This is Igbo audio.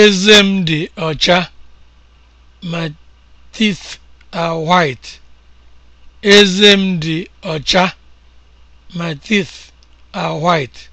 Eze m dị ọcha. My teeth are My teeth are white.